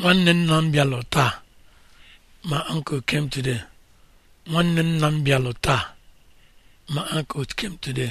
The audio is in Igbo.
nwanne nna m bịalụ taa ma uncle came m bịalụ taa my uncle came today